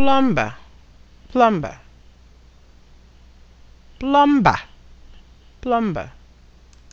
plumber plumber plumber plumber